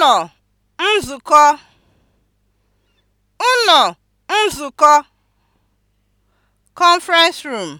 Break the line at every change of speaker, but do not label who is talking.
ụnọ nzukọ ụnọ nzukọ (conference room)